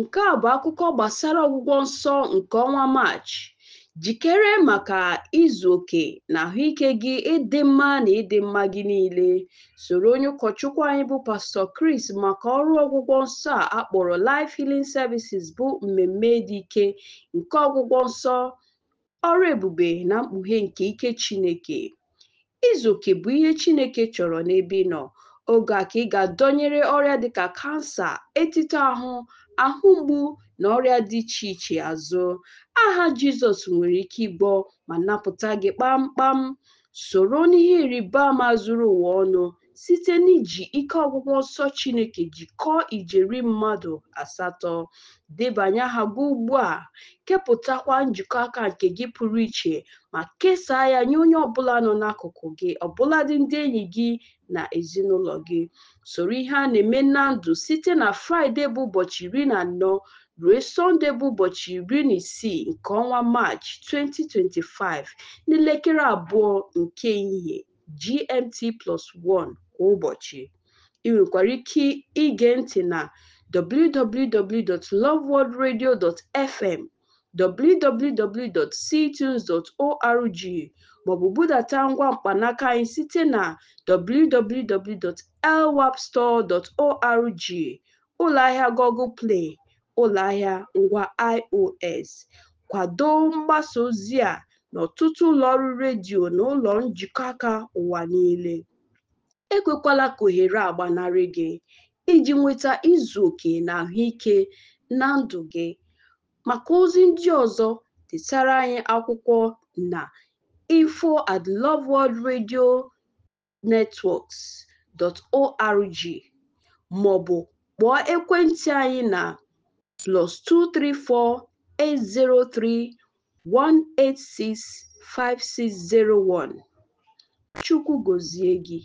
Nke a bụ akụkọ gbasara ọgwụgwọ nsọ nke ọnwa Maachị. Jikere maka izu oke na ahụike gị ịdị mma na ịdị mma gị niile. Soro onye ụkọchukwu anyị bụ Pastọ Kris maka ọrụ ọgwụgwọ nsọ a akpọrọ Life Healing Services bụ mmemme dị ike nke ọgwụgwọ nsọ, ọrụ ebube na mkpughe nke ike Chineke. Izu oke bụ ihe Chineke chọrọ n'ebe ị nọ, oge a ka ị ga-adọnyere ọrịa dịka kansa, etito ahụ ahụ mgbu na ọrịa dị iche iche azụ, aha Jizọs nwere ike ịgbọ ma napụta gị kpamkpam. Soro n'ihe ịrịba ama zuru ụwa ọnụ site n'iji ike ọgwụgwọ nsọ Chineke jikọọ ijeri mmadụ asatọ, debanye aha gị ugbu a, kepụtakwa njikọ aka nke gị pụrụ iche ma kesaa ya nye onye ọbụla nọ n'akụkụ gị ọbụladị ndị enyi gị na ezinụlọ gị. Soro ihe a na-eme na ndụ site na Fraịde bụ ụbọchị iri na anọ ruo Sọnde bụ ụbọchị iri na isii nke ọnwa Maachị 2025 n'elekere abụọ nke ehihie GMT+1 kwa ụbọchị. Ị nwekwara ike ige ntị na www.loveworldradio.fm, www.ctunes.org maọbụ budata ngwa mkpanaka anyị site na www.lwapstore.org, ụlọahịa Google Play, Ahịa ngwa iOS. Kwado mgbasa ozi a n'ọtụtụ ụlọọrụ redio na ụlọ njikọ aka ụwa niile. Ekwekwala ka ohere gị iji nweta izu oke na ahụike na ndụ gị. Maka ozi ndị ọzọ, detara anyị akwụkwọ na info@loveworldradionetworks.org ma ọ bụ kpọọ ekwentị anyị na +234 803 Chukwu gozie gị.